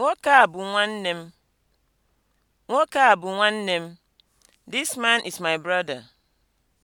Nwoke a bụ nwanne m. Nwoke a bụ nwanne m. This man is my brother.